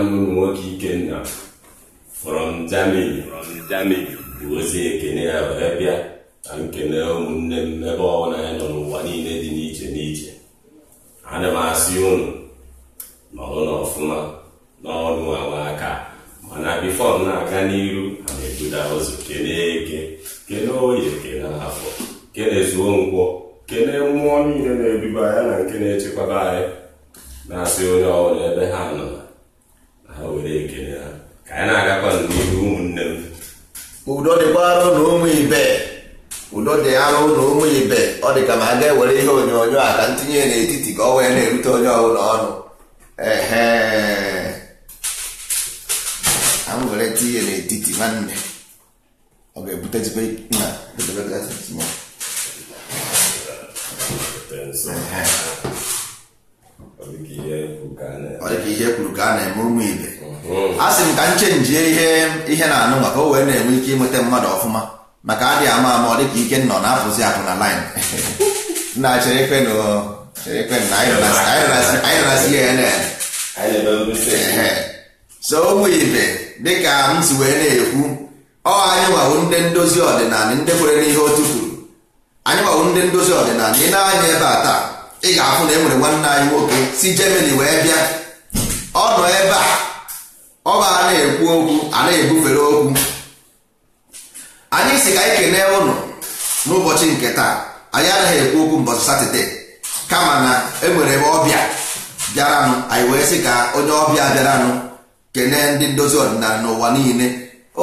nwanne ụmụ nwoke Ikenna from Germany bụ ozi ekene ya wee bịa na nkene ụmụnne m ebe ọbụla ya nọ n'ụwa niile dị n'iche n'iche ana m asị ụnụ nọrụ n'ọfụma n'ọnụ awa aka mana bifọ m na-aga n'iru ana ebuda ụzọ kene eke kene oye kene afọ kene nkwọ kene mmụọ niile na-eduba ya na nke na-echekwaba anyị na-asị onye ọbụla ebe ha nọ ha were ekele ha ka anyị na-agakwa n'ihu ụmụnne m udo dịkwara na ụmụ ibe udo dị arụ na ụmụ ibe ọ dị ka ma a ga-ewere ihe onyonyo a ka ntinye n'etiti ka ọ wee na-erute onye ọbụla ọnụ a tinye n'etiti nwanne ọ ga ọ dịka ihe kwuru ka a na-eme ụmụ ibe a sị m ka nche njie ihe ihe na-anụ maka o wee na-enwe ike ịnweta mmadụ ọfụma maka adị ama ama ọ dịka ike nọ na afụzi apụ na laịn na cherekwe so ụmụ ibe dịka m si wee na-ekwu ọ anyị nwawo ndị ndozi ọdịnala ndị kwere n'ihe otu kwuru anyị nwawo ndị ndozi ọdịnala ị na-anya ebe a taa ị ga-afụ na e nwere nwanne anyị nwoke si Jemani wee bịa ọ nọ ebe a ọ ga a na-ekwu okwu a na-ebufere okwu anyị si ka anyị kenee ụlọ n'ụbọchị nke taa anyị anaghị ekwu okwu mbọchị satọde kama na enwere ebe ọbịa bịaranụ anyị wee sị ka onye ọbịa bịaranụ kenee ndị ndozi ọdịnala n'ụwa niile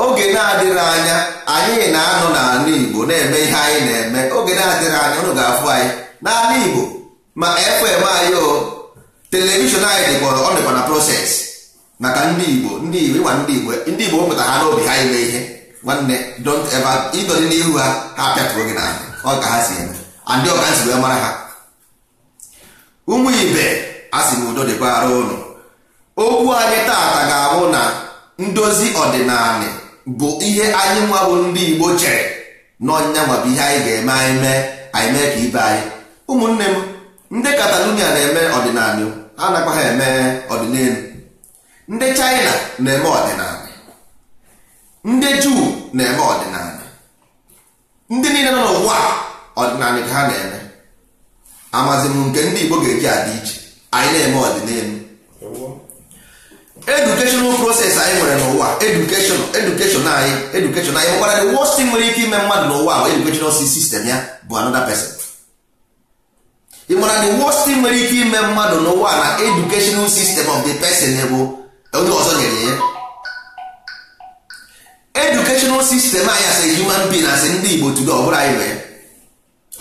oge na-adịghị anya anyị na-anọ n'ala Igbo na-eme ihe anyị na-eme oge na-adịghị anya ọnụ ga-afụ anyị n'ala Igbo ma fm anyị televishọn anyị e dịkpọrọ ọ dịkwa na proses maka ndị igbo ndị igbo ịgwa ndị igbo e. ndị igbo pụta e ha n'obi ha ime ihe nwanne don't n'ihu ha ha apịatụrụ gị n'ahụ ọ ka ha si eme andị ọka si wee mara ha ụmụ ibe a sị m udo dịkwara okwu anyị taata ga-abụ na ndozi ọdịnala bụ ihe anyị nwa bụ ndị igbo chere n'ọnya nwabụ ihe anyị ga-eme anyị mee anyị mee ka ibe anyị ụmụnne m ndị Catalonia na-eme ọdịnala ha nakwa ha eme ọdịnelu ndị China na-eme ọdịnala ndị Juu na-eme ọdịnala ndị niile nọ n'ụwa ọdịnala ka ha na-eme amazi m nke ndị Igbo ga-eji adị iche anyị na-eme ọdịnelu educational proses anyị nwere n'ụwa edukeshon education anyị education anyị nkwara the nwere ike ime mmadụ n'ụwa bụ educational sistem ya bụ another person ị mara the worst thing nwere ike ime mmadụ n'ụwa na educational system of the person bụ onye ọzọ nyere ya educational system anyị asị human being asị ndị Igbo tudo ọbụla anyị nwere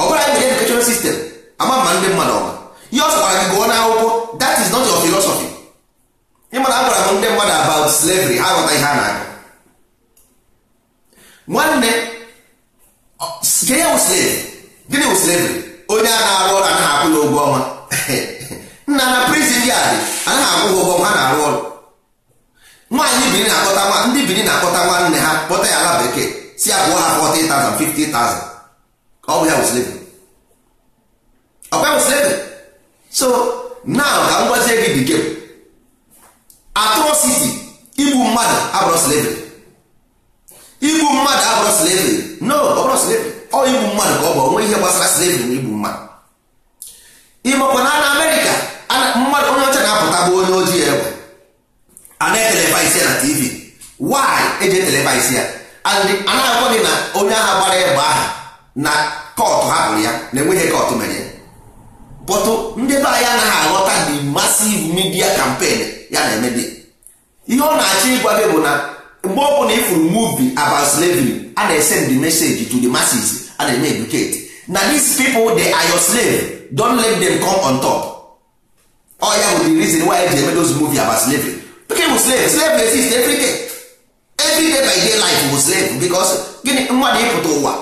ọbụla anyị nwere educational system ama ma ndị mmadụ ọma ihe ọ gwara gị gụọ n'akwụkwọ that is not your philosophy ị mara agwara m ndị mmadụ about slavery ha ghọta ihe a na-agụ nwanne gịnị wụ slavery onye a na-arụ ọrụ anaghị akwụ ya ụgwọ ọnwa nna na prizin yard anaghị akwụ ha ụgwọ ọnwa ha na-arụ ọrụ nwaanyị biri na-akpọta ndị biri na-akpọta nwanne ha kpọta ya ala bekee si abụọ ya kwụọ ha 40,000 50,000 ọ bụ ya wụsịrị ọkwa wụsịrị so now ka m gwazie gị dị gem atrocity igbu mmadụ abụrụ slavery igbu mmadụ abụrụ slavery no ọ bụrụ slavery ọ igbu mmadụ ka ọ bụ onwe ihe gbasara slavery na igbu mmadụ ịmakwa na na amerịka mmadụ onye ọcha na-apụta bụ onye ojii egbe a na-etelevaisi ya na tv why eji etelevaisi ya anaghịkwa gị na onye agha gbara egbe ahụ na kọtụ hapụrụ ya na enweghị kọtụ mere bọtụ ndị be anyị anaghị aghọta the massive midia kampen ya na-emebi ihe ọ na-achọ ịgwa gị bụ na mgbe ọ bụla ifuru movie about slavery a na-esend the message to the masses a na-eme educate na these people they are your slave don't let them come on top All ya bụ the reason why eji eme those movie about slavery pikin bụ slave slave exist every day every day by day life bụ slave because gịnị mmadụ ịpụta ụwa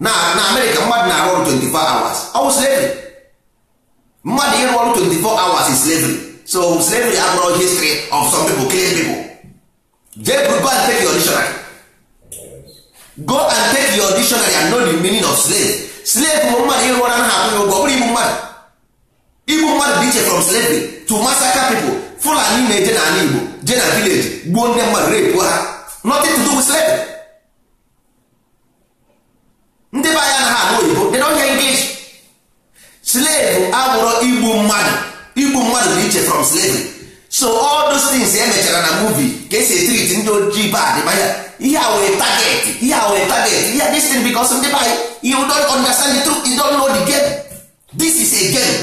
na na amerịka mmadụ na-arụ ọrụ 24 hours ọ bụ slavery mmadụ ịrụ ọrụ 24 hours is slavery so slavery abụrụ history of some people killing people Jeburu go and take your dictionary. Go and take your dictionary and know the meaning of slave. Slave bụ mmadụ ịrụ ọrụ anaghị akwụ ya ụgwọ bụrụ igbu mmadụ. Igbu mmadụ dị iche from slavery to massacre people. Fulani na-eje n'ala Igbo je na village gbuo ndị mmadụ repu ha. Nothing to do with slavery. Ndị be anya anaghị anụ oyibo they don't hear English. Slave abụrụ igbu mmadụ. Igbu mmadụ dị iche from slavery. so all those things e mechara na movie ka esi etriti ndị ojii bad manya ihe a were target ihe a were target ihe this thing because ndị banyị you don't understand the truth you don't know the game this is a game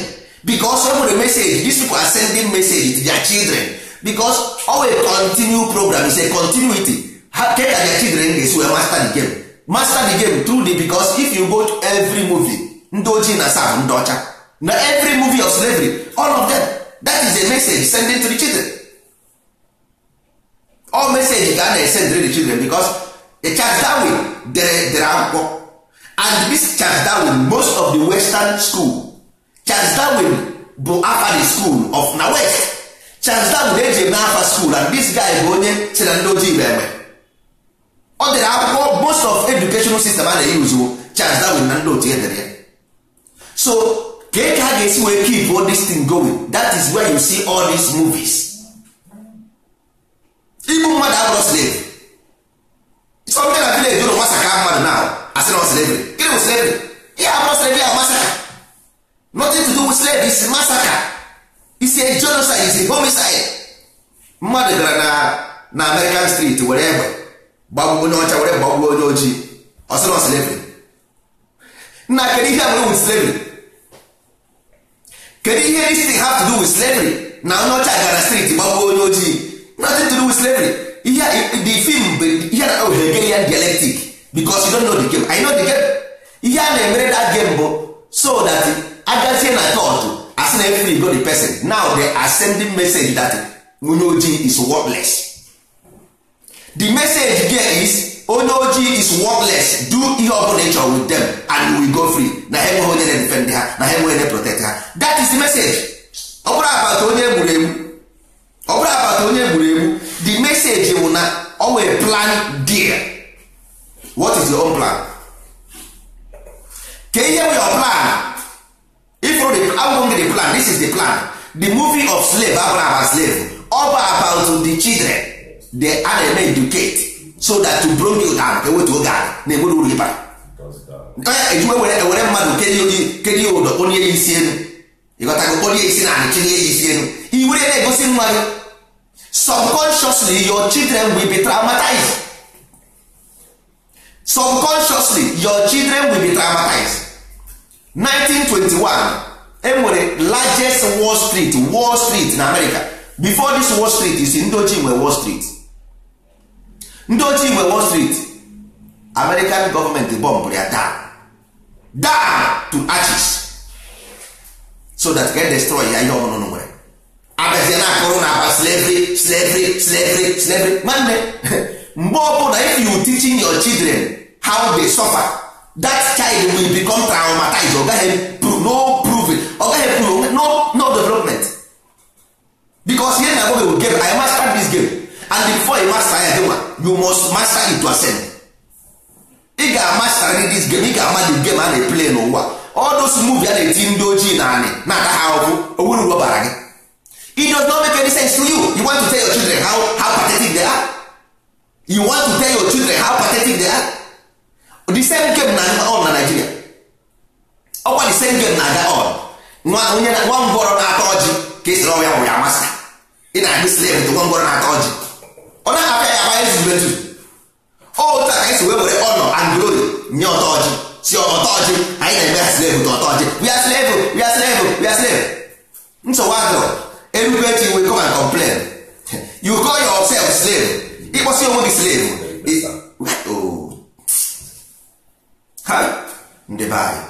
because o nwere message these people are sending message to their children because always continue program is a continuity ha ke ka their children ga-esi wee master the game master the game through the because if you go to every movie ndị ojii na sab ndị ọcha na every movie of slavery all of them that is a message sending to the children all message ka a na send to the children because the Charles Darwin dere dere akwụkwọ and this Charles Darwin most of the western school Charles Darwin bụ afa the school of na west Charles Darwin eji na afa school and this guy bụ onye si na ndị ojii bụ egbe ọ dere akwụkwọ most of educational system a na-eyuzuo Charles Darwin na ndị otu edere ya so ka eke ha ga-esi wee keep all this thing going that is where you see all these movies igbu mmadụ abụrụ slave something na village ụlọ nwasa ka mmadụ na asị na slavery gịnị bụ slavery ihe abụrụ slavery ahụ masaka nothing to do with slavery masaka is a genocide is a homicide mmadụ gara na na American street were egbe gbagbuo onye ọcha were gbagbuo onye ojii ọsị na slavery nna kedu ihe a nwere with slavery kedu ihe isi have to do with slavery na onye ọcha gara street gbagbuo onye ojii nothing to do with slavery ihe the film ihe na oh Hegelian dialectic because you don't know the game I know the game ihe a na-emere that game bụ so that agazie na church as na every go the person now they are sending message that onye ojii is worthless the message there is onye ojii is worthless do ihe ọ bụla ịchọ with them and we go free na ha enweghị onye na-edefend ha na ha enweghị protect ha that is the message ọ bụrụ abata onye egburu egbu ọ bụrụ abata onye egburu egbu the message bụ na ọ nwere plan dear what is your own plan ka ihe bụ your plan ifro the agwụgwọ gị the plan this is the plan the movie of slave abụrụ aba slave ọ bụ about the children they are na-eme educate so that to bring you down ewetu oge a na-enwere uru ịbara onye ejiwe ewere mmadụ kedu ya ụdọ kpọlie ya isi elu ịghọtago kpọlie isi na anị tinye ya isi elu iwere na-egosi nwa gị subconsciously your children will be traumatized subconsciously your children will be traumatized 1921 enwere largest wall street wall street na america before this wall street is ndị ochie nwe wall street ndị ochie igwe wall street american gọọmenti bọmbụrụ ya down down to ashes so that ga destroy ya ihe ọṅụṅụ nwere abazie na akụrụ na aba slavery slavery slavery slavery nwanne mgbe ọbụla if you teaching your children how they suffer that child will become traumatized ọ no prove ọ gaghị prove no no development because here na-agwa gị game I must start this game and before you master ya dịwa you must master it to ascend ị ga-amastarị this game ị ga-ama the game a na-eplay n'ụwa ọdụs muvi a na-eti ndị ojii na anị na-ata ha ọkụ owuru uru ọbara gị it does not make any sense to you you want to tell your children how, how pathetic they are you want to tell your children how pathetic they are the same game na on na Nigeria ọkwa the same game na-aga on nwa onye nwa ngwọrọ na-ata ọjị ka esiri ọnwa ya bụ ya masa ị na-adị slave to nwa ngwọrọ na-ata ọjị ọ na aka ya aba ezube ezu ọụta ka anyị si wee were ọnọ and glory nye ọtọ si ọtọ ọjị anyị na-eme ha slave ta ọtọ ọjị we are slave we are slave we are slave nsogbu adịrọ erube echi we come and complain you call yourself slave ịkpọsi onwe gị slave oh. ha ndị anyị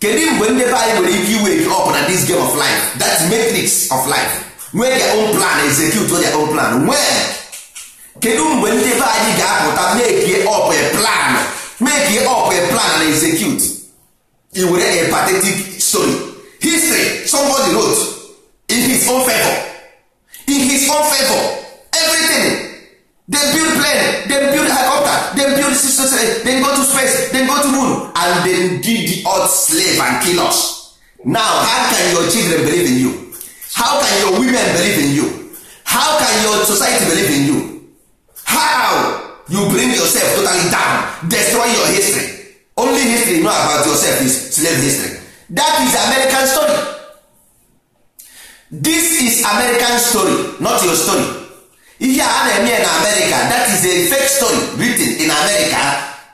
kedu mgbe ndị be anyị nwere ike iwe gị up na this game of life that matrix of life nwee ya own plan execute ya own plan where kedu mgbe ndị be anyị ga-apụta make up a plan make up a plan and execute i were a pathetic story history somebody wrote in his own favor in his own favor everything dem build plane dem build helicopter dem build systems dem go to space dem go to moon and dem did the earth slave and kill us now how can your children believe in you how can your women believe in you how can your society believe in you how you bring yourself totally down destroy your history only history you know about yourself is slave history that is american story this is american story not your story ihe a na-eme na america that is a fake story written in america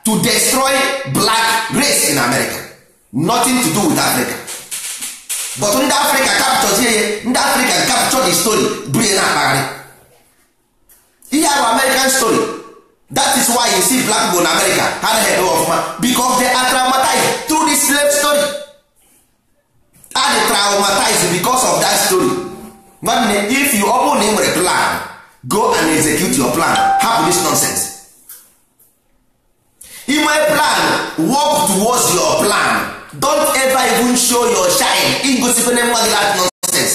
to destroy black race in america nothing to do with africa but ndị africa capture ndị africa capture the story brie na akpagharị ihe bụ american story that is why you see black people in america ha head eme ọfụma because they are traumatized through this slave story and traumatized because of that story nwanne if you ọ bụrụ na ị nwere plan go and execute your plan hapụ this nonsense ị nwee plan work towards your plan don't ever even show your shine igosikwe mmadụ that nonsense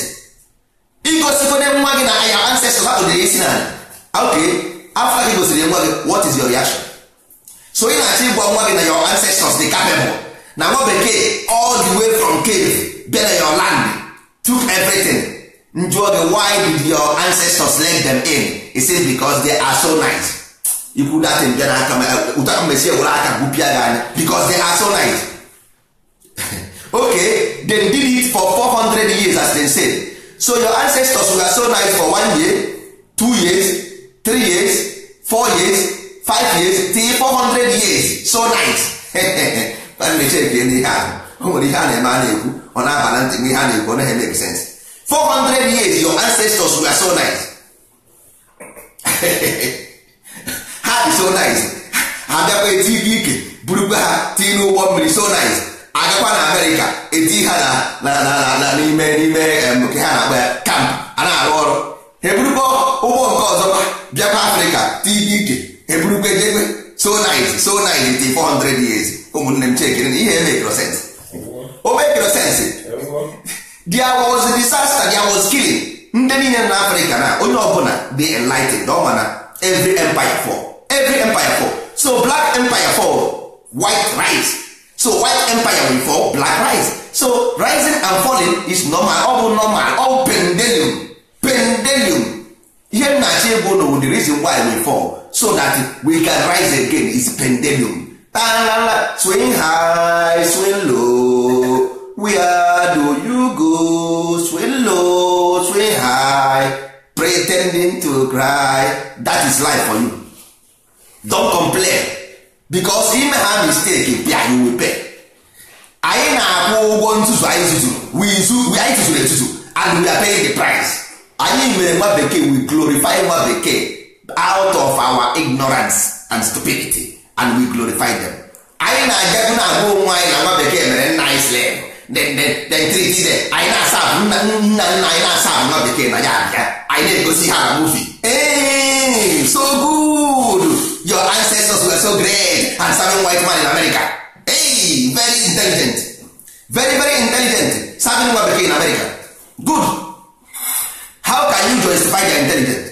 igosikwe nwa gị na your ancestors hapụdere isi n'ala Ah, okay after gị gosiri nwa gị what is your reaction so ị na-achọ ịgwa nwa gị na your ancestors dị capable na nwa bekee all the way from cave bịa na your land took everything njụọ gị why did your ancestors let them in he says because they are so nice ikwu datin bịa n'aka ụta mmesi ewere aka gwupịa gị anya because they are so nice okay they did it for 400 years as they said so your ancestors were so nice for one year two years three years four years five years till four hundred years so nice check ihe ahụ o nwere ihe a na-eme a na-ekwu ọ na-aba na ntị ihe a na-ekwu ọ naghị make sense 400 years your ancestors were so nice ha dị so nice ha bịakwa eti ibe ike burukwa ha tii n'ụgbọ mmiri so nice agakwa na amerịka eti ha n'ime n'ime nke ha na-akpọ ya kamp a na-arụ ọrụ eburukwa ụgbọ nke ọzọ bịakwa afrịka tidike eburukwa ejegbe so nit so nit 400 years ụmụnne m chekere na ihe emekro sens o mekro sens dia was disaster dia was killing ndị niile na afrịka na onye ọbụla dị enlightened ọ ma na every empire fall every empire fall so black empire fall white rise so white empire will fall black rise so rising and falling is normal ọ bụ normal so that we can rise again is pandemum tanala swing high swing low where do you go swing low swing high pretending to cry that is life for you don't complain because im ha mistake bịa you will pay anyị na-akwụ ụgwọ ntutu anyị tuturu anyị tuturu etutu and we are paying the price anyị mere nwa bekee we glorify nwa bekee out of our ignorance and stupidity and we glorify them anyị na-agagu na agwa onwe anyị na nwa bekee mere nna anyị slem anyị na-asa nna nna anyị na-asa nwa bekee na ya abịa anyị na-egosi ha na ee so good your ancestors were so great and serving white man in America hey very intelligent very very intelligent serving nwa bekee in America good how can you justify their intelligence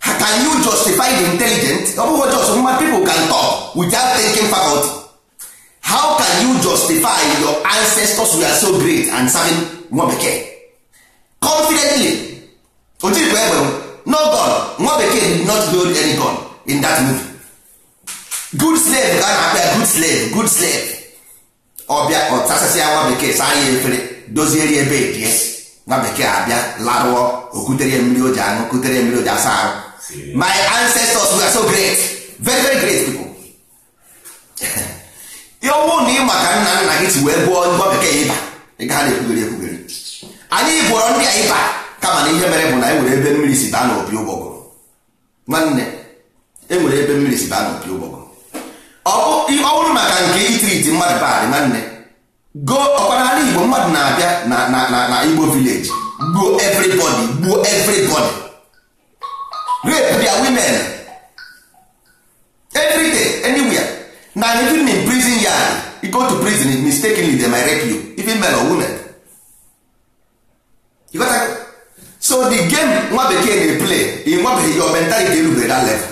can you justify the intelligent ọ bụghị just human people can talk without thinking faculty how can you justify your ancestors were so great and serving nwa bekee confidently ojirikwa egbe no God. nwa bekee did not build any gun in that movie good slave ka na-akpa good slave good slave ọbịa ọtasasịa nwa bekee saa ya efere dozieri ebe yes nwa bekee abịa larụọ o kutere mmiri o ji aṅụ kutere mmiri o asa ahụ my ancestors were so great very very great people ihe ọnwụ na ị maka nna nna gị si wee gụọ nwa bekee ịba ịgaha na-ekwughere ekwughere anyị gwọrọ ndị a ịba kama na ihe mere bụ na enwere ebe mmiri si baa n'opi ụgbọgụrụ nwanne enwere ebe mmiri si baa n'opi ụgbọgụrụ ọ bụrụ maka nke itriti mmadụ baadị nwanne go ọkpara igbo mmadụ na-abịa na na na igbo village gbuo everybody gbuo everybody rape their women everyday anywhere na even in prison yard you go to prison mistakenly they might rape you even men or women you got so the game nwa bekee dey play nwa bekee your mentality erubere that level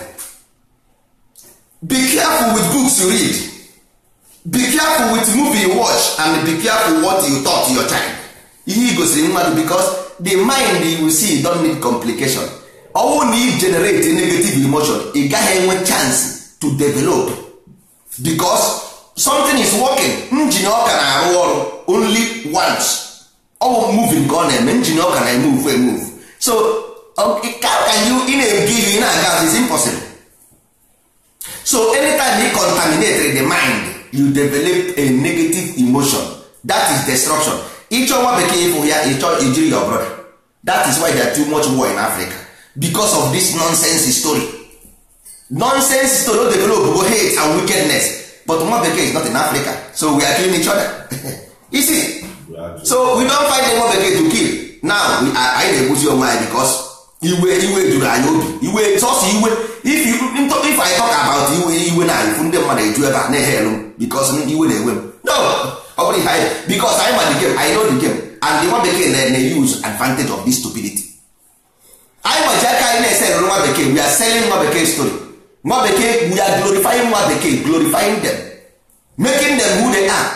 be careful with books you read be careful with movie you watch and be careful what you talk to your child ihe igosiri mmadụ because the mind you see don need complication ọnwụ na i generate negative emotion ị gaghị enwe chance to develop because something is working njin ọka na-arụ ọrụ only once ọ bụ moving ka ọ na-eme njin ọka na emove emove so can you ị na-egive ị na-aga is impossible so anytime you contaminate the mind you develop a negative emotion that is destruction ịchọwa bekee ịfụ ya ịchọ ijiri your brother that is why there too much war in africa because of this nonsense story nonsense story o develop go hate and wickedness but nwa bekee is not in africa so we are killing each other you see so we don find nwa bekee to kill now we are anyị na-egbuzi onwe anyị because iwe iwe juru anyị obi iwe sọsọ iwe if I talk about iwe iwe na ifu ndị mmadụ eju ebe a na-ehe elu because iwe na-ewe m no ọ bụrụ ihe anyị because anyị ma the game I know the game and the nwa bekee na use advantage of this stupidity anyị ma ji aka anyị na-ese nwa bekee we are selling nwa bekee story nwa bekee we are glorifying nwa bekee glorifying them making them who they are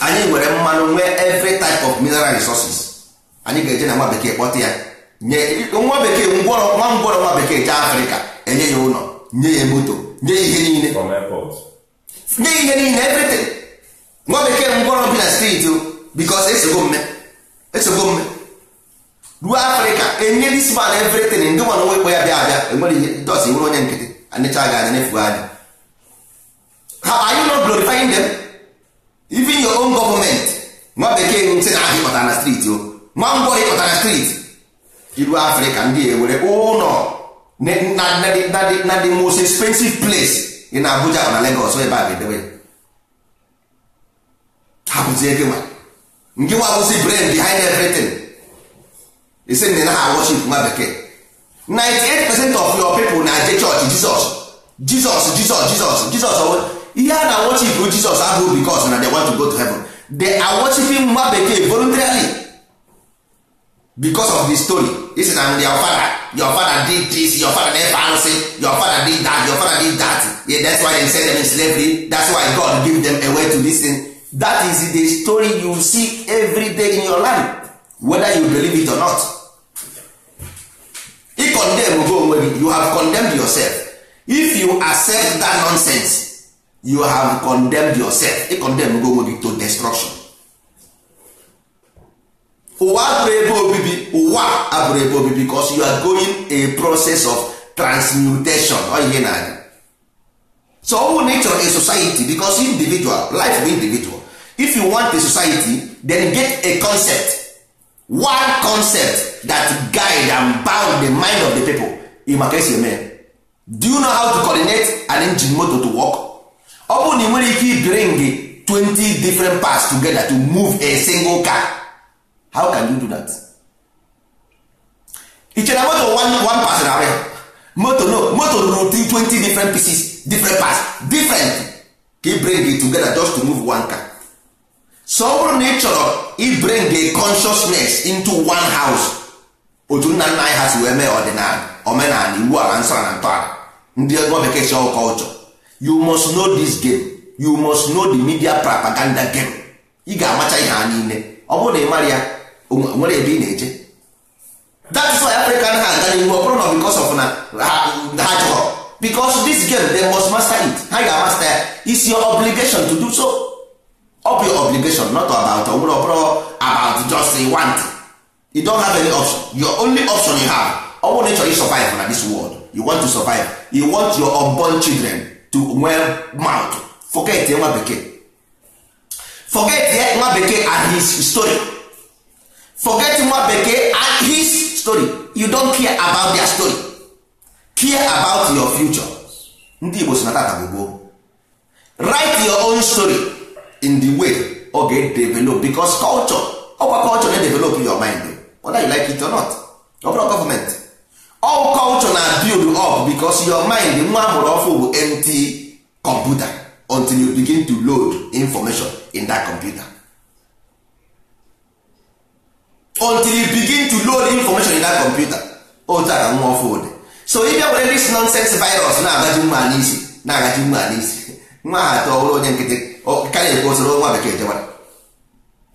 anyị nwere mmanụ nwee every type of mineral resources anyị ga-eje na nwa bekee kpọta ya nye nwa bekee ngwọrọ nwa ngwọrọ nwa bekee jee afrịka enye ya ụlọ nye ya moto nye ihe niile nye ihe niile everything nwa bekee ngwọrọ bi na steeti because esogo mme esogo mme ruo afrịka enye this man everything ndị nwana nwekwe ya bịa abịa enwere ihe dos e nwere onye nkịtị anịcha ga anya nefugo anya ha anyị nọ glorifying them even your own government nwa bekee ntị na ahịa ịkpọtara na steeti o nwa ngwọrọ ịkpọtara na steeti iru afrịka ndị ewere ụlọ oh, na the most expensive place ị na abuja na legos ebe a ga-edewe ha bụzie gịnwa ndị wabụzi brain behind everything isi na ha worship nwa bekee 98 percent of your people na je church jizọs jizọs jizọs jizọs jizọs oh. ihe a na worship jizọs abụghị because na they want to go to heaven they are nwa bekee voluntarily because of the story this is na your father your father did this your father never answer your father did that your father did that yeah, that's why they send them in slavery that's why God give them a way to listen that is the story you see every day in your life whether you believe it or not If condemn go onwe you have condemned yourself if you accept that nonsense you have condemned yourself If condemn go onwe to destruction ụwa abụrụ ebe obibi ụwa abụrụ ebe obibi because you are going a process of transmutation ihe na-aga so ọ bụrụ na ị chọrọ a society because individual life bụ individual if you want a society then get a concept one concept that guide and bound the mind of the people ị maka esi eme do you know how to coordinate an engine motor to work ọ bụrụ na ị nwere ike ibring 20 different parts together to move a single car how can you do that i chere moto one pass na arịa moto no moto rụrụ 20 different pieces different parts different ka bring it together just to move one car so ọ bụrụ na ị chọrọ i bring a consciousness into one house otu nna nna anyị ha si wee mee ọdịnala omenala iwu ala nsọ na ntọala ndị ego bekee si ọkọ ụchọ you must know this game you must know the media propaganda game ị ga-amacha ihe nile niile ọ bụrụ na ị ya nwere ebe ị na-eje that's why africa na ha aga n'ihu ọ bụrụ na because of na ha chọrọ because this game they must master it ha ga-amasta ya is your obligation to do so ọ bụ your obligation not about ọ bụrụ ọ bụrụ about just want you don't have any option your only option you have ọ bụrụ na ị chọrọ survive na this world you want to survive you want your unborn children to well mouth forget nwa bekee forget nwa bekee and his story forget nwa bekee and his story you don't care about their story care about your future ndị Igbo si na tata gbogbo write your own story in the way oge ga-develop because culture ọkwa culture na-develop your mind whether you like it or not ọ government all culture na build up because your mind nwa amụrụ ọfụ bụ empty computer until you begin to load information in that computer until you begin to load information in that computer otu a nwa ọfụ ụdị so ị bịa were this nonsense virus na-agaji nwa n'isi na-agaji nwa n'isi nwa ha atọ ọhụrụ onye nkịtị karịa na-ekwe osoro nwa bekee jewara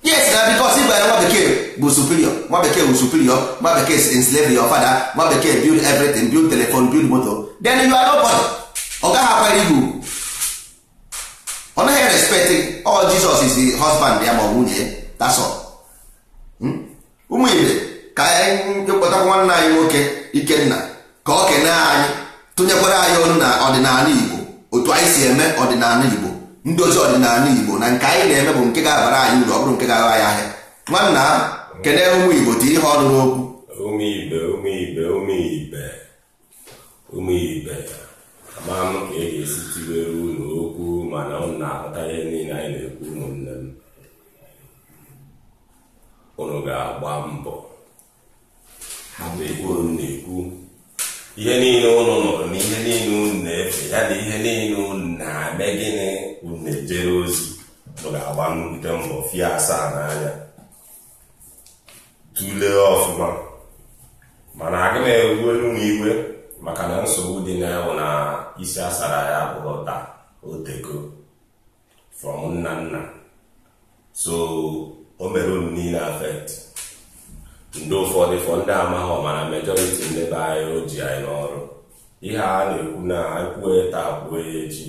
yes na bikos ịbara nwa bekee bụ superior nwa bekee bụ superior nwa bekee si enslave your father nwa bekee build everything build telephone build motor then you are nobody ọ gaghị akwara igwu ugwu ọ naghị respect all oh, Jesus is the husband ya ma ọ nwunye ya that's all ụmụ ibe ka anyị kpọtakwa nwanne anyị nwoke ikenna ka ọ kenee anyị tụnyekwara anyị ọnụ na ọdịnala igbo otu anyị si eme ọdịnala igbo ndozi ọdịnala igbo na nke anyị na-eme bụ nke ga-abara anyị uru ọ bụrụ nke ga-agha ya ahịa nwanna ha ụmụ igbo dị ihe ọnụ n'okwu ụmụ ibe ụmụ ibe ụmụ ibe ụmụ ibe ka e ga-esi unu okwu mana na-aghọta ihe niile anyị na-ekwu ụmụnne unu ga-agba mbọ hapụ ego unu na-ekwu ihe niile unu nụrụ na ihe niile unu na-efe ya na ihe niile unu na-eme gịnị unu na-ejere ozi unu ga-agba nnukwu mbọ fie asaa n'anya tụlee ọfụma mana agị m ewuelu m igwe maka na nsogbu dị na-ewu na isi asara ya bụrụ taa oteko from nna nna so o mere unu niile afet ndị ụfọdụ fọ ndị amaghị ọmana mejọriti ndị be anyị oji anyị n'ọrụ ihe a na-ekwu na kwue taa kwuo echi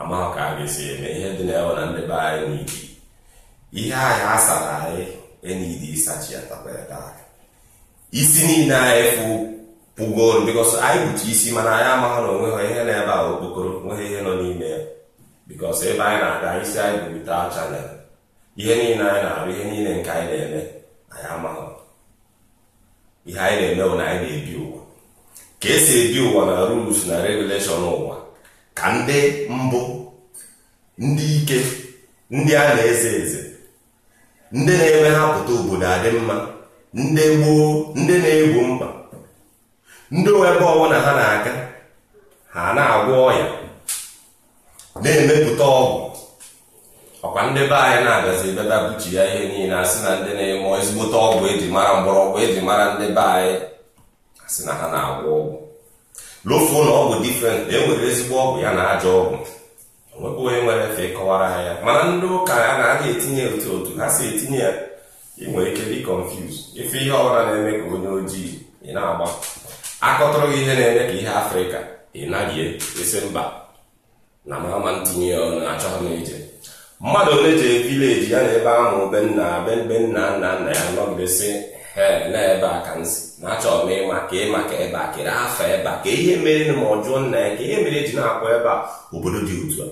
amaghị ka a ga-esi eme ihe dị na ewe na ndị be anyị n'iji. ihe anyị asara anyị enidi ịsachi ya takwa ya taa isi niile anyị fụ pụgo bikos anyị kpuchi isi mana anyị amaghị na ha ihe na-ebe a okpokoro nweghị ihe nọ n'ime ya bikos ebe anyị na-aga isi anyị bụrita chanel ihe niile anyị na-arụ ihe niile nke anyị na-eme anyị amaghị ihe anyị na-eme bụ na anyị na-ebi ụwa ka esi ebi ụwa na rules na regulation ụwa ka ndị mbụ ndị ike ndị a na-eze eze ndị na-eme hapụta obodo adị mma ndị gboo ndị na-egbo mkpa ndị ebe ọbụla ha na-aga ha na-agwọ ọya na-emepụta ọgwụ ọkwa ndị be anyị na-abịazi bịaba buchi ya ihe niile asị na ndị na enwe ezigbote ọgwụ eji mara mgbọrọgwụ eji mara ndị be anyị asị na ha na-agwọ ọgwụ lofuo na ọgwụ difrent na e enwere ezigbo ọgwụ ya na ajọ ọgwụ onwebụ onye nwere efe kọwara ha ya mana ndị ụka ya na aga etinye otu otu ha si etinye ya ị nwere ike dị confuse ife ihe ọbụla na-eme ka onye ojii ị na-agba akọtụrụ gị ihe na-eme ka ihe afrịka ị naghị e, esi mba na mama ntinye ya ọnụ achọghị m ije mmadụ ole jee vileji ya na ebe ahụ benna nna be nna nna nna ya nọgidesi na ebe a ka nsi na achọrọ m ịma ka ịma ka ebe a kere afa ebe a ka ihe mere ma ọ jụọ nna ya ka ihe mere e ji na-akpọ ebe a obodo dị otu a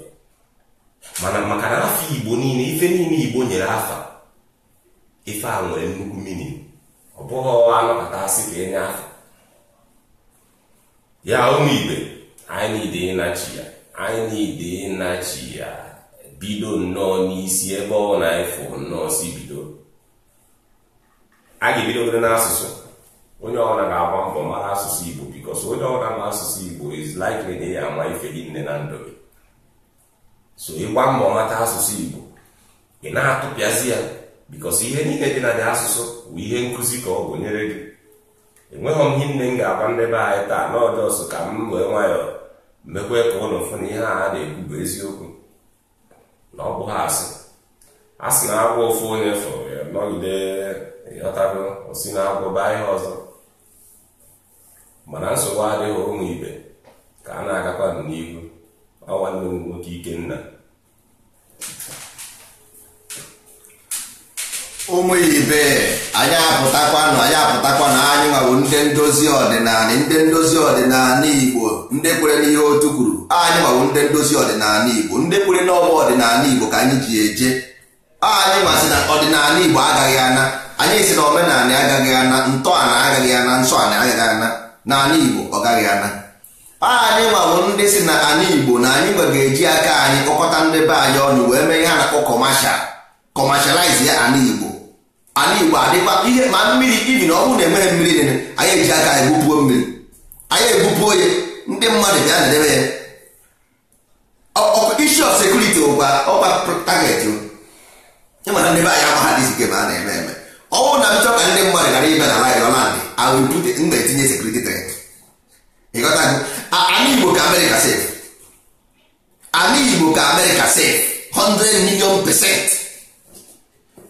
mana maka na afọ igbo niile ife niile igbo nyere afọ ife a nwere nnukwu mmiri ọ bụghị anọpụta asị ka enye afa ya ụmụ igbe anyị niile ịnachi ya anyị niile ịnachi ya bido nnọọ n'isi ebe ọ na-efu nnọọ si bido a ga-ebidogoro n'asụsụ onye ọbụla ga-agba mbọ mara asụsụ Igbo because onye ọbụla ma asụsụ Igbo is likely na ya ama ife gị nne na ndụ gị so ịgba mbọ mata asụsụ Igbo ị na-atụpịazi ya because ihe niile dị na dị asụsụ bụ ihe nkụzi ka ọ bụ nyere gị enweghị m ihe nne m ga-agwa ndị anyị taa n'ọdọsụ ka m wee nwayọọ mekwe ka ụlọ fụ na ihe a na-ekwu bụ eziokwu na ọ ha asị a sị na agwọ ofu onye fọrọ ya nọgide ịghọtago osi na agwọ baa ihe ọzọ mana nsogbu adịghị ụmụ ibe ka a na-agakwa n'ihu ọ nwanne m nwoke Ikenna ụmụ ibe anyị apụtakwanụ anyị apụtakwanụ anyị nwawo ndị ndozi ọdịnala ndị ndozi ọdịnala igbo ndị kwere n'ihe otu kwuru anyị nwawo ndị ndozi ọdịnala igbo ndị kwere n'ọgba ọdịnala igbo ka anyị ji eje anyị masị na ọdịnala igbo agaghị ana anyị si na omenala agaghị ana ntọala agaghị ana nsọ ala agaghị ana n'ala igbo ọ gaghị ana anyị nwawo ndị si na ala igbo na anyị nwe ga-eji aka anyị kpọkọta ndị be anyị ọnụ wee mee ihe a na-akpọ kọmashal kọmashaliz ya ala igbo ala igbo adịkwa ihe ma mmiri ibi na ọ bụrụ na enweghị mmiri nene anyị eji aka egbupuo mmiri anyị egbupuo ya ndị mmadụ bịa na edebe ya issue of sekuriti ụgwa ọkwa target ịmana ndị be anyị agba ha dị zike ma a na-eme eme ọ bụrụ na m ka ndị mmadụ ghara ibe na laịrọlandị awụpụte m na-etinye sekuriti tret ịghọtago ala igbo ka amerịka sef ala igbo ka amerịka sef 100 million pesenti.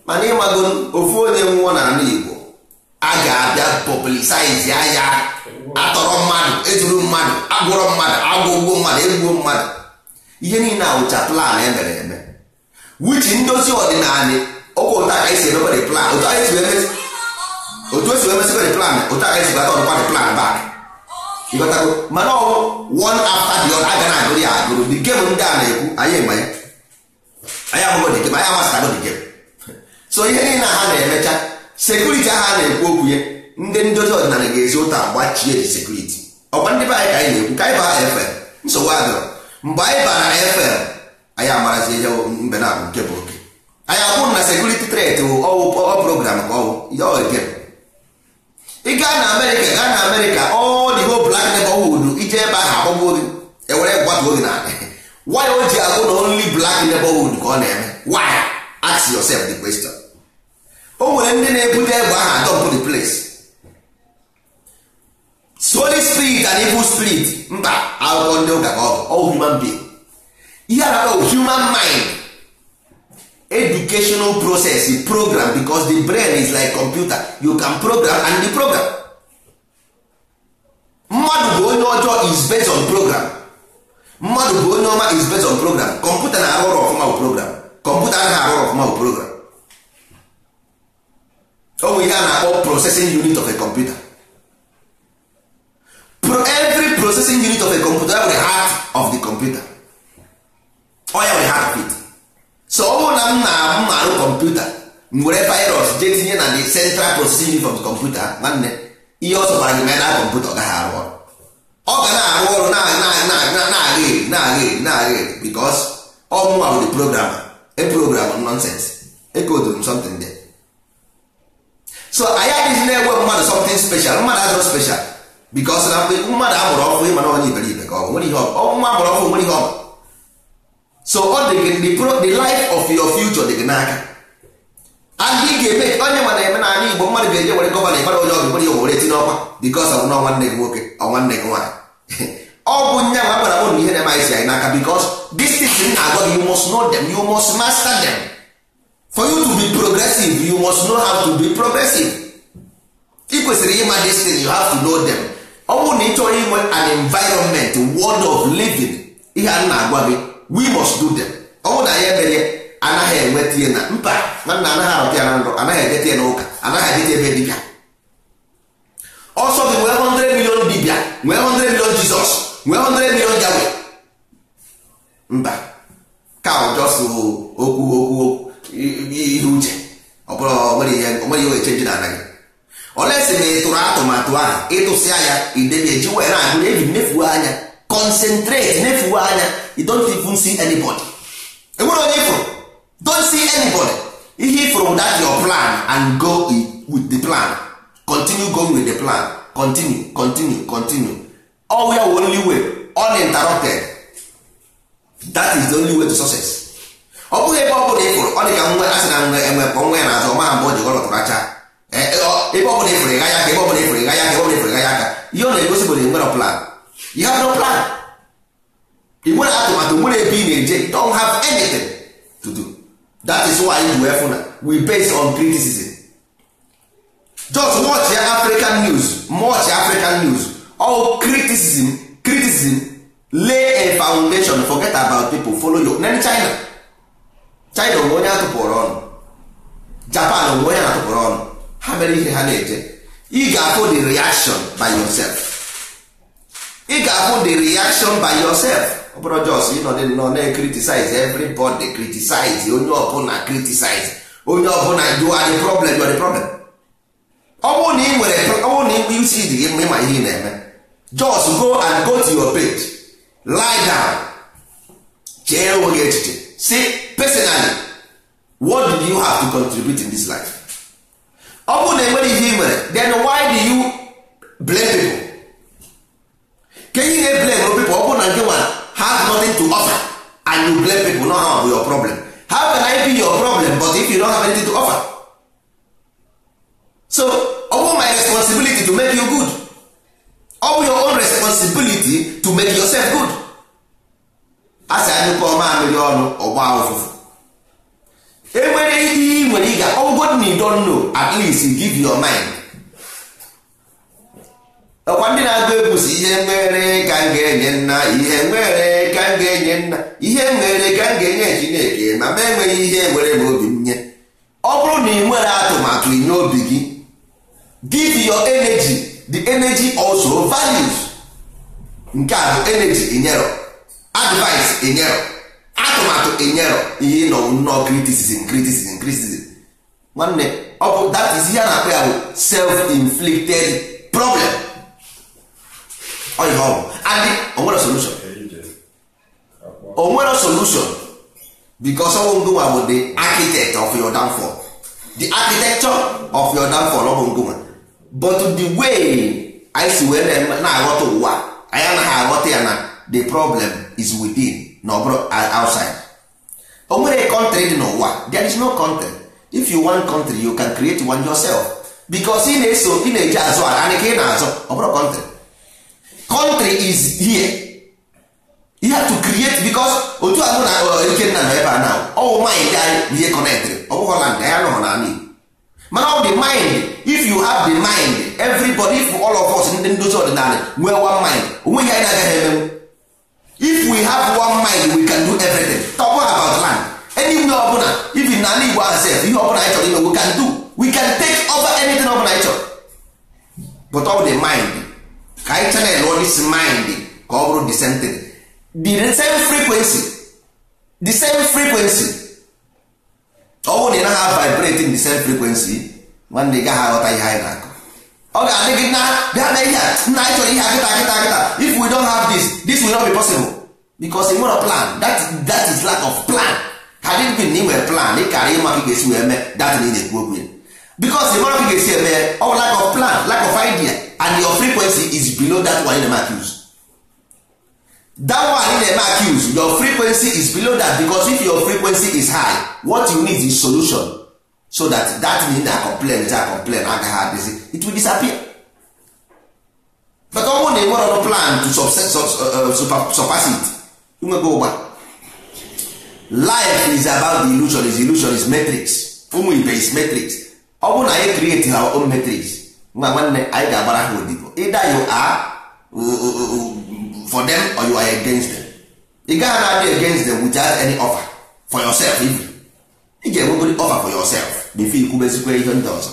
mana ịmago ofu onye nwụọ anụ Igbo a ga-abịa pọblisaizi anya atọrọ mmadụ ejuru mmadụ agwụrọ mmadụ agwụgwọ mmadụ egbuo mmadụ ihe niile awụcha plan emere eme wichi ndozi ọdịnala otu ụta ka esi emebere plan otu esi emesịbere plan otu aka esi bata ọdụkwadị plan bak ịgotago mana ọwụ one after the other na agụrụ ya agụrụ dị gem ndị a na-ekwu anyị ma ya anyị abụghị dị gem anyị amasịtago dị gem so ihe niile ha na-emecha sekuriti aha na-ekwu okwu ya ndị ndozi ọdịnala ga-ezi ụta gbachie ji sekuriti ọkwa ndị be anyị ka anyị na-ekwu ka anyị baa efel nsogbu adịrọ mgbe anyị bara efel anyị amarazi ihe mbe na abụ nke bụ oke anyị akwụ na sekuriti tret ọwụ program ka ọwụ ya oge ị gaa na amerịka gaa na amerịka ọ dị ho blak nebọwud ije ebe ahụ akpọgbuo gị ewere gbatu oge e na why o ji agụ na only black nebọwud ka ọ na-eme why ask yourself the question o nwere ndị na-ebute egbe aha atọ the place holy spirit and evil spirit mba akwụkwọ ndị ụka ka ọ bụ human being ihe a human mind educational process e program because the brain is like computer you can program and the program mmadụ bụ onye ọjọọ is based on program mmadụ bụ onye ọma is based on program kọmputa na-arụ ọrụ ọfụma program kọmputa anaghị arụ ọrụ ọfụma program o nwere ihe a na-akpọ processing unit of a computer Pro every processing unit of a computer nwere heart of the computer oya oh, we have it so ọ bụrụ na m na arụ kọmputa were virus jee tinye na the central processing unit of the computer nwanne ihe ọ sọbara gị na kọmputa ọ gaghị arụ ọrụ ọ ga na-arụ ọrụ na-aga eri na-aga eri na-aga eri because ọ mụnwa bụ the program a program nonsense ekodoro m something there so anyị adịghị na-enwe mmadụ something special mmadụ adịrọ special because na mmadụ amụrụ ọkụ ịma na onye iberibe ka ọ nwere ihe ọnwa amụrụ ọkụ nwere ihe ọma so ọ dị gị the life of your future dị gị n'aka and ga-eme onye mana eme na ala igbo mmadụ ga-eje were gọvanọ ịbara onye ọgụ nwere ihe were tinye ọkwa because ọnwụ na nwanne gị nwoke nwanne gị nwaanyị ọ bụ nye ma gwara m ihe na-eme anyị si anyị n'aka because this thing na-agwa gị you must know them master them for you to be progressive you must know how to be progressive ị kwesịrị ịma this you have to know them ọ bụrụ na ị chọrọ inwe an environment world of living ihe a na-agwa gị we must do them ọ bụrụ na anyị emere anaghị enweta ihe na mba nwanna anaghị arọta ya na nrọ anaghị edeta ya n'ụka anaghị edeta ebe dibịa ọsọ gị nwee 100 million dibịa nwee 100 million jizọs nwee 100 million jawe mba ka ọ jọsụ okwu okwu okwu ihe uche ọ bụrụ onweghị ihe echenji na anaghị olesi na ịtụrụ atụmatụ ahụ ịtụsịa ya ideji wee na-agụ eji nefuo anya concentrate nefuo anya you don't even see anybody enwere onye ifụrụ don't see anybody ihe ifụrụ that your plan and go with the plan continue going with the plan continue continue continue all we are only way uninterrupted that is the only way to success ọ bụghị ebe ọ bụla ịfụrụ ọ dị ka nwe asị na nwe enwe mkpọ nwe na-azụ ọma maha mgbe o ji gọlọtụrụ acha e, e, ebe ọ bụla ịfụrụ ịgha ya aka ebe ọ bụla ịfụrụ ịgha ya aka ebe ọ bụla ịfụrụ ịgha ya aka ihe ọ na-egosi bụ na nwere plan you have plan ị nwere atụmatụ nwere ebe ị na-eje don't have anything to do that is why you wee fụna we based on criticism just watch ya African news watch African news all criticism criticism lay a foundation forget about people follow your then China china onwe onye atụpụrụ ọnụ japan onwe onye atụpụrụ ọnụ ha mere ihe ha na-eje ị ga-afụ the reaction by yourself ị ga-afụ the reaction by yourself ọ bụrụ jos nọ na-criticize everybody criticize onye ọbụla criticize onye ọbụla you are the problem you are the problem ọ bụrụ na ị nwere ọ na ịkpa isi dị gị ịma ihe ị na-eme jos go and go to your page lie down chee onwe echiche si personally what do you have to contribute in this life ọ bụrụ na enwere ihe nwere then why do you blame people Can you ihe blame people ọ bụrụ na nke nwere have nothing to offer and you blame people not have your problem how can I be your problem but if you don't have anything to offer so ọ bụ my responsibility to make you good ọ bụ your own responsibility to make yourself good a sị anyụkọ mamịrị ọnụ ọgba ụfụfụ enwere ihe ị nwere ịga ọgwụgwọ na idon at least give your mind ọkwa ndị na-agụ egwu ihe mere ka m ga-enye nna ihe mere ka m ga-enye nna ihe mere ka m ga-enye chineke ma ma enweghị ihe were m obi m nye ọ bụrụ na ị nwere atụmatụ inye obi gị give your energy the energy also values nke a bụ energy inyero advice inyero atụmatụ enyero ihe ịnọ nnọọ criticism criticism criticism nwanne ọ bụ that is a na-akpọ ya bụ self-inflicted problem ọ ihe ọ bụ adị onwere solution onwere solution because ọwụ bụ the architect of your downfall the architecture of your downfall ọ bụ but the way anyị si wee na-aghọta ụwa anyị anaghị aghọta ya na the problem is within na ọ outside o nwere country dị n'ụwa there is no country if you want country you can create one yourself because ị na-eso ị na-eji azụ ala anyị ka ị na-azụ ọ country country is here you have to create because otu a na ikenna uh, nọ ebe a na ọwụ mind anyị na ihe connectry ọ bụghị land ya nọ n'ala Igbo mana ọ dị mind if you have the mind everybody all of us ndị ndozi ọdịnala nwee one mind onweghị anyị na-agaghị emenwu if we have one mind we can do everything talk about land anywhere ọbụla even n'ala Igbo asef ihe ọbụla anyị chọrọ ime we can do we can take over anything ọbụla anyị chọrọ but ọ the mind ka anyị chanel ọ this mind ka ọ bụrụ the same thing the same frequency the same frequency ọ bụrụ na ị naghị vibrate in the same frequency nwanne ị gaghị aghọta ihe anyị na-akọ ọ ga-adị gị na bịa na ihe a nna anyị chọrọ ihe akịta akịta akịta if we don't have this this will not be possible because nwere plan that, that is lack of plan had it been na ị plan ị kara ịma ka ị ga-esi wee mee that na ị na-ekwu okwu ya because ịmara ka ị ga-esi eme ọ lack of plan lack of idea and your frequency is below that one in the eme that one in the eme your frequency is below that because if your frequency is high what you need is solution so that that thing na complain ja complain agaghị adịzi it will disappear but ọ bụrụ na ị ọrụ plan to uh, uh, surpass it nwego ụgba life is about the illusion is illusion is matrix ụmụ ibe is matrix ọ bụ na anyị create our own matrix nwa nwanne anyị ga-agbara ha odibo ịda you are uh, for them or you are against them ị gaghị na-adị against them without any offer for yourself even ị ga-enwegori offer for yourself bife ikwubezikwa ihe ndị ọzọ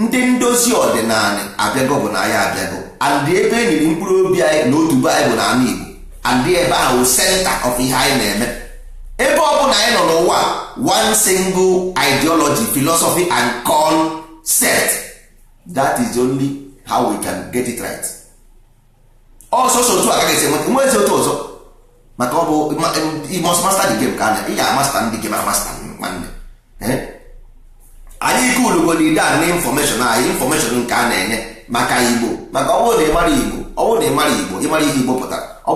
ndị ndozi ọdịnala abịago bụ na anyị abịago andị ebe eniri mkpụrụ obi anyị na otu baịbụl na ala Igbo andị ebe ahụ senta of ihe anyị na-eme ebe ọ bụla anyị nọ n'ụwa one single ideology philosophy and concept that is only how we can get it right ọsọsọ otu ga esi enweta nwe ezi otu ọzọ maka ọ bụ masta dị gem ka anya ị ga-amasta ndị gem amasta nwanne eh? anyị ike na ide a na infọmeshọn anyị infọmeshọn nke a na-enye maka igbo maka ọbụ na igbo ọbụ na ịmara igbo ị mara ihe igbo pụtara na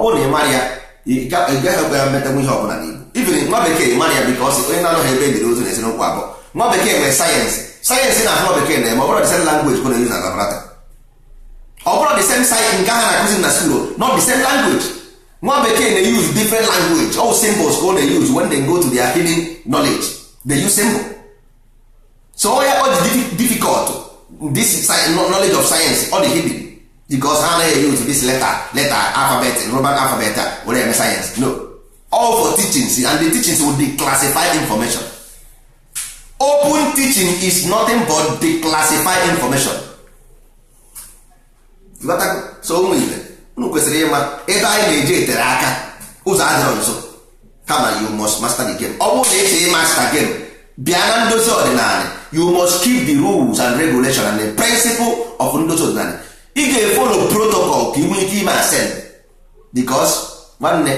ị ya ịgaghịkwa ya ihe ọbụla n'igbo ibiri nwa bekee mara ya biko ọsị onye na-anọghị ebe ebiri ozu na abụọ nwa bekee nwere sayensị sayensị na nwa bekee na-eme ọ bụrụ na ọ same nke na-akụzi na skuul na ka ọ na-eyuzu go to so onye ọ dị difficult this knowledge of science ọ dị hidden because ha anaghị use this letter letter alphabet roman alphabet were eme science no all for teachings and the teachings will declassify information open teaching is nothing but declassify information so ụmụ ibe unu kwesịrị ịma ebe anyị na-eji etere aka ụzọ adịrọ nso kama you must master the game ọ bụrụ na esi ịmasta game bịa na ndozi ọdịnala you must keep the rules and regulation and the principle of ndozi ọdịnala ị ga-efolo protocol ka ị ike ime asem because nwanne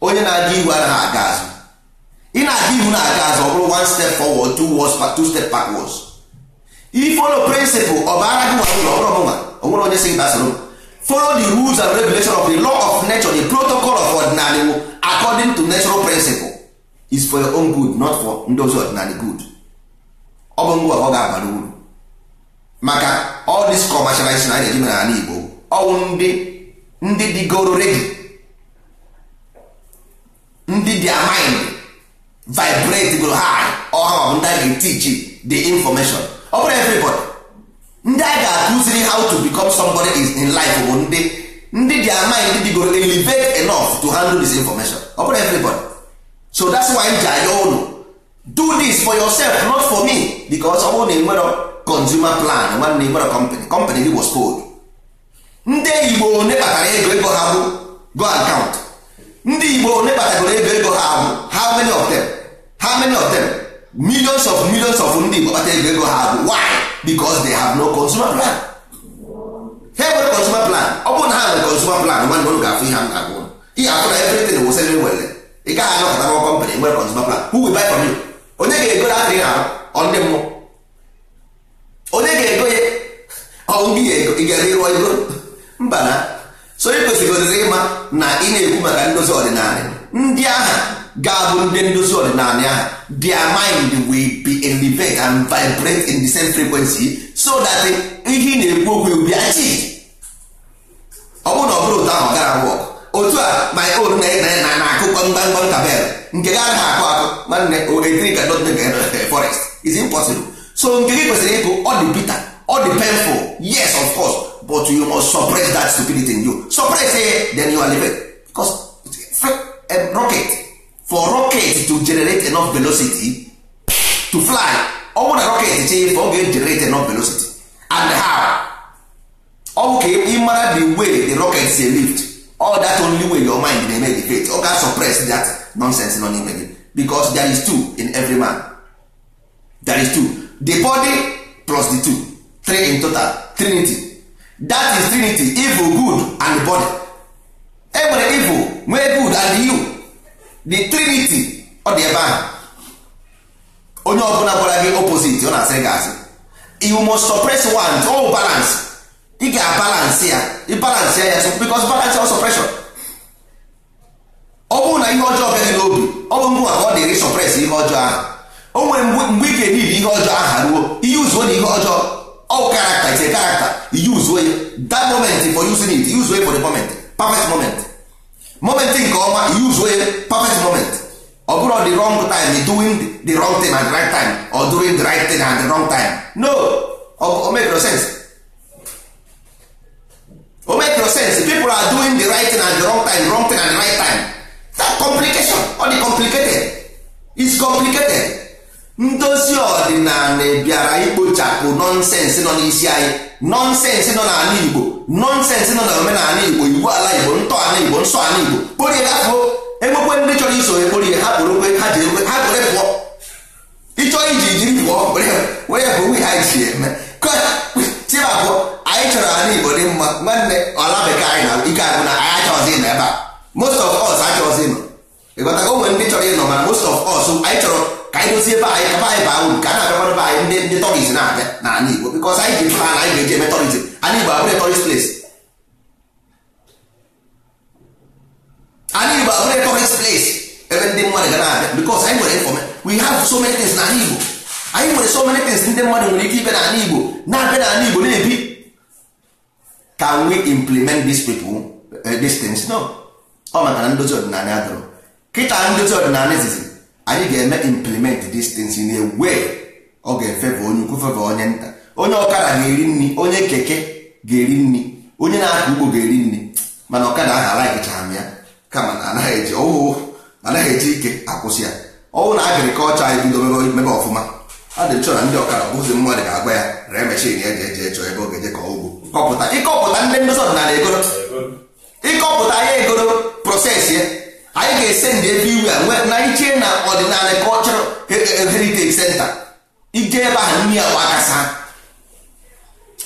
onye na-aga iwu anaghị aga azụ ị na-aga ihu na-aga azụ ọ bụrụ one step forward two words two step backwards ifolo principle ọbara bara gị nwa ụlọ ọbụrụ ọbụnwa onwere onye sị gị gbasoro m follow the rules and regulation of the law of nature the protocol of ordinary according to natural principle is for your own good not for ndozi ọdịnala good ọ bụ ngwa ọ ga-abara uru maka all this na anyị na-eji mere ala Igbo ọwụ ndị ndị digoro redi ndị dị maịn vibrate goro ha ọha ma bụ ndị a ga-etichi the information ọ bụrụ everybody ndị a ga-akụziri how to become somebody is in life bụ ndị ndị dị digoro ndị dịgoro elevate enough to handle this information ọ bụrụ everybody so that's why m ji anya ụlọ do this for yourself not for me because ọ bụrụ na enwero consumer plan nwanne enwero company company gị was cold ndị igbo one kpatara ego ego ha bụ go account count ndị igbo one kpatagoro ego ego ha bụ how many of them how many of them millions of millions of ndị igbo kpata ego ego ha bụ why because they have no consumer plan ha nwere consumer plan ọ bụrụ na ha nwere consumer plan nwanne ụlọ ga-afụ ihe m na-agụ ihe afụ na everything wụsịrị nwere ị gaghị anọkọta n'ọkọ company nwere consumer plan who will buy from you onye ga-ego ya adịghị ahụ ndị mmụọ onye ga-ego ya ọnwụ gị ga-ere ịrụọ ego mba na so ị kwesịrịgodịrị ịma na ị na-ekwu maka ndozi ọdịnala ndị aha ga-abụ ndị ndozi ọdịnala aha their mind will be elevate and vibrate in the same frequency so that ihe ị na-ekwu okwu will be ọ bụrụ na ọ bụrụ ụtọ ahụ ọ gara wọk otu a my own eh, na na na akụkọ mgbamgba ntabel nke gị anaghị akụ akụ nwanne etiri ka dot eh, forest is impossible so nke gị kwesịrị ịkụ ọ dị bitter ọ dị painful yes of course but you must suppress that stupidity in you suppress it eh, then you are living because a rocket for rocket to generate enough velocity to fly ọ bụrụ na rocket chee for ọ ga-generate enough velocity and how ọ bụ ka ị mara the way the rocket si lift all that only way your mind dey make the faith ọ ga suppress that nonsense nọ n'ime gị because there is two in every man there is two the body plus the two three in total trinity that is trinity evil good and body Every evil nwee good and you the trinity ọ dị ebe ahụ onye ọbụla gwara gị opposite ọ na-asị gị asị you must suppress one all balance ị ga balance ya ịbalansị ya because balance also pressure ọ bụrụ na ihe ọjọọ bịaghị n'obi ọ bụ mgbe ọ dịrị sọpres ihe ọjọọ ahụ o nwere mgbe ị ga-enidi ihe ọjọọ aha ruo ihe uzuo na ihe ọjọọ ọ karakta ise karakta yuzuo ya that moment for using it yuzuo for the moment perfect moment moment nke ọma yuzuo ya perfect moment ọ bụrụ the wrong time doing the wrong thing at the right time or doing the right thing at the wrong time no o make no sense nọnsensị nọ n'ala igbo nọnsensị nọ na omenala igbo iwu ala igbo ntọala igbo nsọ ala igbo kporie afọ enwekwe ndị chọrọ iso ya hapụrụ ha kporokwe ha ji ekwe ha pụọ iji jiri pụọ were bụ nwe ha ji eme tibapụ anyị chọrọ ala igbo dị mma nwanne ala bekee anyị na ike na anyị achọzi ịnọ ebe a most of us ka anyị dozie ebe anyị anyị baa uru ka a na be anyị ndị ndị na-abịa n'ala Igbo bikọs anyị ji mkpa na anyị ga-eji eme tọriz anyị Igbo abụrụ ples anyị Igbo abụrụ tọriz ples ebe ndị mmadụ ga na-abịa bikọs anyị nwere we have so many things n'ala Igbo anyị nwere so many things ndị mmadụ nwere ike ibe Igbo na-abịa Igbo na-ebi can we implement eh, these people these no ọ maka na ndozi ọdịnala adọrọ kịta ndozi anyị ga-eme implement these things in a way ọ ga-efeva onye ukwu feva onye nta onye ọkara ga-eri nri onye keke ga-eri nri onye na akụ ugbo ga-eri nri mana ọkada ahụ alaghịchara ya kama na anaghị eji ọwụ anaghị eji ike akwụsị ya ọwụ na agrikọlchọ anyị bidoro mebe ọfụma a dị chọọ na ndị ọkara bụzi mmadụ ga-agwa ya ree meshin ya ji eje chọọ ebe ọ ga-eje ka ugbo ịkọpụta ndị ndozi ọdịnala egoro ịkọpụta ya egoro proses ya anyị ga-esendị ese ndị everywhere na iche na ọdịnala cultural heritage center ije ebe ahụ nri gbakasa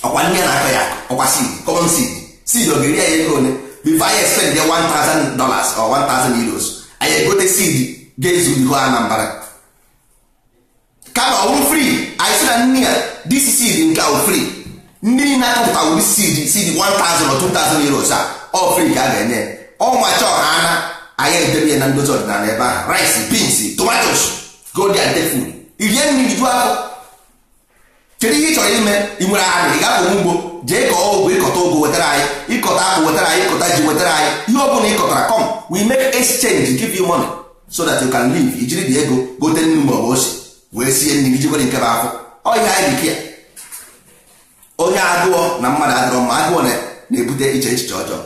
ọkwa nri na-atọ ya ọkwa seed common seed seed ọ ga-eri anyị ego ole before anyị expend ya 1000 dollars or 1000 euros anyị egote seed ga-ezu ihu kama ọwụ anyị sị na nri a, nke ahụ ndị na-akọpụta wuri 1000 or 2000 euros a ọ ka aga enye ọnwa anya edebe na ndozi ọdịnala ebe ahụ rice beans tomatos go there and take food irie ju ahụ kedu ihe ị chọrọ ime ị nwere aha ị ga-apụ je jee kọọ ọgwụ ịkọta ụgụ wetara anyị ịkọta akpụ wetara anyị ịkọta ji wetara anyị ihe ọ bụla ịkọtara kọm we mek exchange give you money so that you can live ijiri dị ego gote nnu mgbe ọ bụ wee sie nri ijikwa nke bụ afọ ọhịa anyị dịka onye agụọ na mmadụ adịrọ mma agụọ na-ebute iche echiche ọjọọ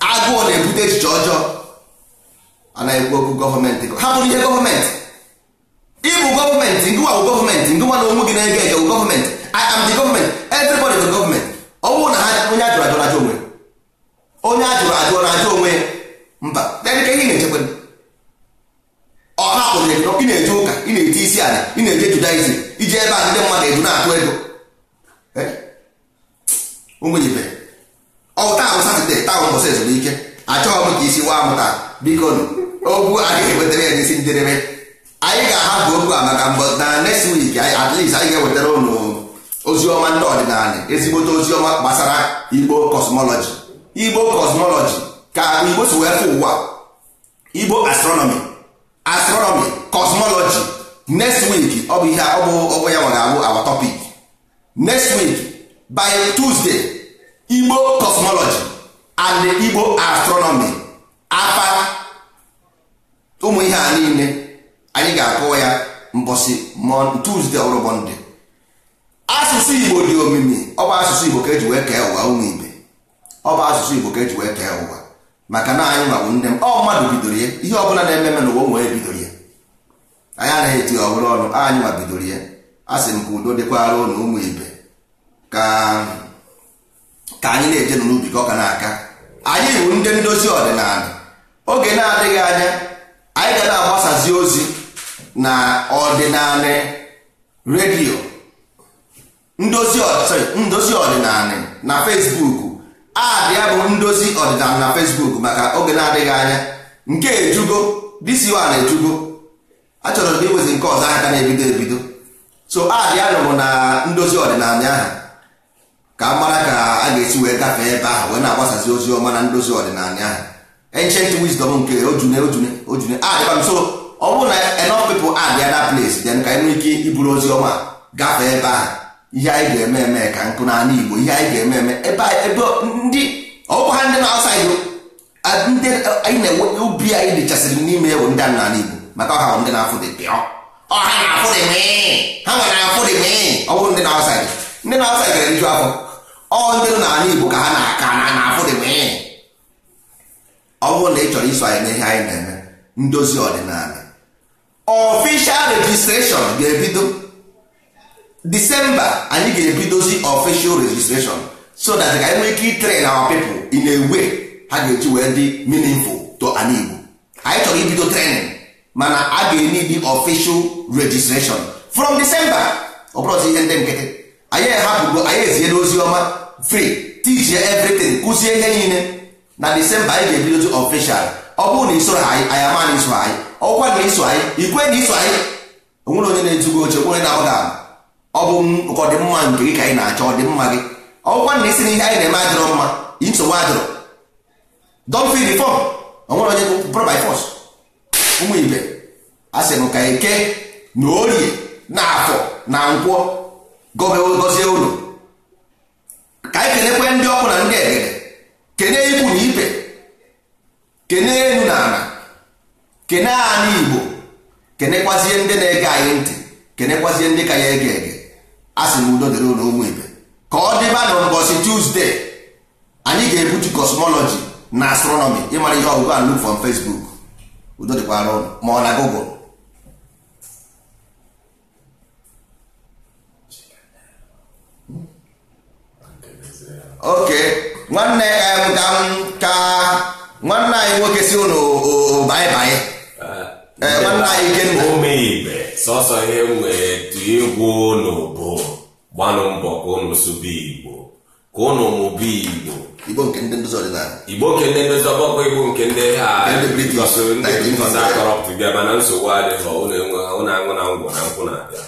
agụụ na-ebute echiche ọjọọ anaghị okwu gọọmenti hapụrụ ihe gọọmenti ịbụ gọọmenti ngụwa bụ gọọmenti ngụwa na onwe gị na-ege ege bụ gọọmenti I am the gọọmenti everybody bụ gọọmenti ọ bụrụ na ha onye ajụrụ ajụrụ ajụ onwe onye ajụrụ ajụrụ ajụ onwe mba dedike ihe na-echekwa ọ hapụrụ ego ị na-eje ụka ị na-eje isi ala ị na-eje judaism iji ebe a ndị mmadụ edu na-atụ ego ụmụ ibe ọta ụsa ezumike achọghị m ka isi waa m taa biko okwu a ga-ewetara ya n'isi njedebe anyị ga-ahapụ okwu a maka mbọ na next week anyị ga-ewetara unu ozi ọma ndị ọdịnala ezigbote ozi ọma gbasara igbo cosmology igbo cosmology ka igbo si wee fụ ụwa igbo astronomi astronomi cosmology next week ọ bụ ihe ọ bụ ọ ya nwere abụ our topic next week by tuesday igbo cosmology and igbo astronomy afa ụmụ ihe a niile anyị ga-akọwa ya mbọsị Tuesday ọrụ asụsụ igbo dị omimi ọ bụ asụsụ igbo ka eji wee kee ụwa ụmụ ibe ọ bụ asụsụ igbo ka eji wee kee ụwa maka na anyị nwabụ ndị m ọ mmadụ bidoro ya ihe ọbụla na eme n'ụwa ụmụ onye bidoro ya anyị anaghị eti ọhụrụ ọnụ anyị ma bidoro ya a sị m ka udo dịkwara ụnụ ụmụ ibe ka ka anyị na-eje n'ubi ka ọ ka na-aka anyị bụ ndị ndozi ọdịnala oge na-adịghị anya anyị ga na-agbasazi ozi na ọdịnala redio ndozi ọdịnala na Facebook adị ya bụ ndozi ọdịnala na Facebook maka oge na-adịghị anya nke ejugo disi wa na-ejugo achọrọ m iwezi nke ọzọ aka na-ebido ebido so adị nụrụ na ndozi ọdịnala ahụ ka a mara ka a ga-esi wee gafee ebe ahụ wee na-agbasazi ozi ọma na ndozi ọdịnala ahụ ancient wisdom nke ojune ojune ojune adịkwa so ọ bụrụ na enough people abịa na place then ka enwee ike iburu ozi ọma gafee ebe ahụ ihe anyị ga-eme eme ka nkụ n'ala Igbo ihe anyị ga-eme eme ebe ndị ọkwa ha ndị na-asaghị ndị anyị na-enwe ubi anyị dịchasịrị n'ime ewu ndị n'ala Igbo maka ọha ndị na-afụ dị pịọ ọha na-afụ dị ha nwere afụ dị ọ bụrụ ndị na-asaghị ndị na-asaghị gara nju afọ ọ ndị nọ n'ala Igbo ka ha na-aka na na-afụ dị mee ọ bụrụ na ị chọrọ iso anyị n'ihe anyị na-eme ndozi ọdịnala Ọfishal registration ga-ebido Disemba anyị ga-ebidozi ọfishal registration so that ka anyị nwee ike itrain na people ị na-ewe ha ga-eji wee dị meaningful to ala Igbo anyị chọrọ ibido training mana a ga-enye dị official registration from December ọ bụrụzi ihe ndị nkịtị anyị ehapụgo anyị eziere ozi ọma free tijie everything kụzie ihe niile na disemba anyị ga-ebidozi official ọ bụrụ na isoro anyị anyị ama na iso anyị ọkwa na iso anyị ikwe na iso anyị onwere onye na-ezugo oche onye na-agbaghị ọ bụ nke ọdịmma nke gị ka anyị na-achọ ọdịmma gị ọkwa na isi na ihe anyị na-eme adịrọ mma nsogbu adịrọ don fi onwere onye bụrụ by force ụmụ ibe a sị m ka eke na orie na afọ na nkwọ gọzie ụlọ anyị kenekwe ndị ọkụ na ndị egede kene ikwu na ibe kene elu na ala kene anyị igbo kenekwazie ndị na-ege anyị ntị kenekwazie ndị ka ya ege ege a sị na udo dịrị ụlọ ụmụ ibe ka ọ dịba na mbọsị tuzdee anyị ga-ebutu kosmọlọji na astronomi ịmara ihe ọgụgụ and look from Facebook udo dịkwara ma ọ na Google oke nwanne ka nwanne anyị nwoke si ụnụ baịbaị eh, eh, nwanne anyị omeibe sọsọ ihe nwere tu egwu ụnụ bụ gbanụ mbọ ka ụnụ sụba igbo ka ụnụ mụba igbo igbo nke ndị ndozi ọdịnala igbo nke ndị ndozi igbo nke ndị ha mana nsogbu adịghị na ngwụ na nkwụ na-abịa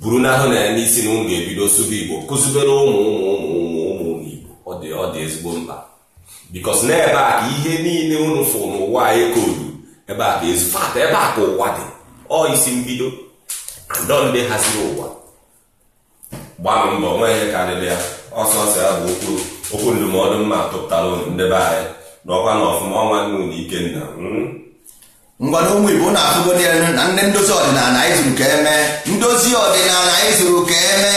buru na ya n'isi na ga-ebido sụba igbo kụzibere ụmụ ụmụ ụmụ ụmụ ọ dị ọ dị ezigbo mkpa bikos na ebe a ka ihe niile unu fụ n'ụwa anyị e koodu ebe a ka ezu fata ebe a ka ụwa dị ọ isi mbido anọ ndị haziri ụwa gbanụ mbọ nweghị karịrị ya ọsọsọ ya bụ okwu okwu ndụmọdụ mma tụpụtara unu ndebe anyị n'ọkwa ọkwa na ọfụma ọnwa nne unu ikenna hmm? ngwana ụmụ igbo na-afụgodi ya na ndị ndozi ọdịnala anyị zuru ka eme ndozi ọdịnala anyị zuru ka eme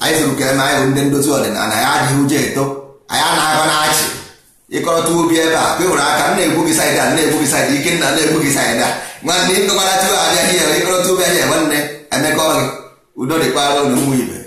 anyị sụrụ kere anyị bụ ndị ndozi ọdịnala anyị adịghị ụjọ eto anyị anaghị na-achị ịkọrọta obi ebe a kewere aka nna egbu gị saịdị a nna egbu gị saịdị ike nna na-egbu gị saịdị nwanne ịkọkọta tuwo abịaghị ya ịkọrọta obi ahịa nwanne emekọ gị udo dịkwara ụlọ ụmụ ibe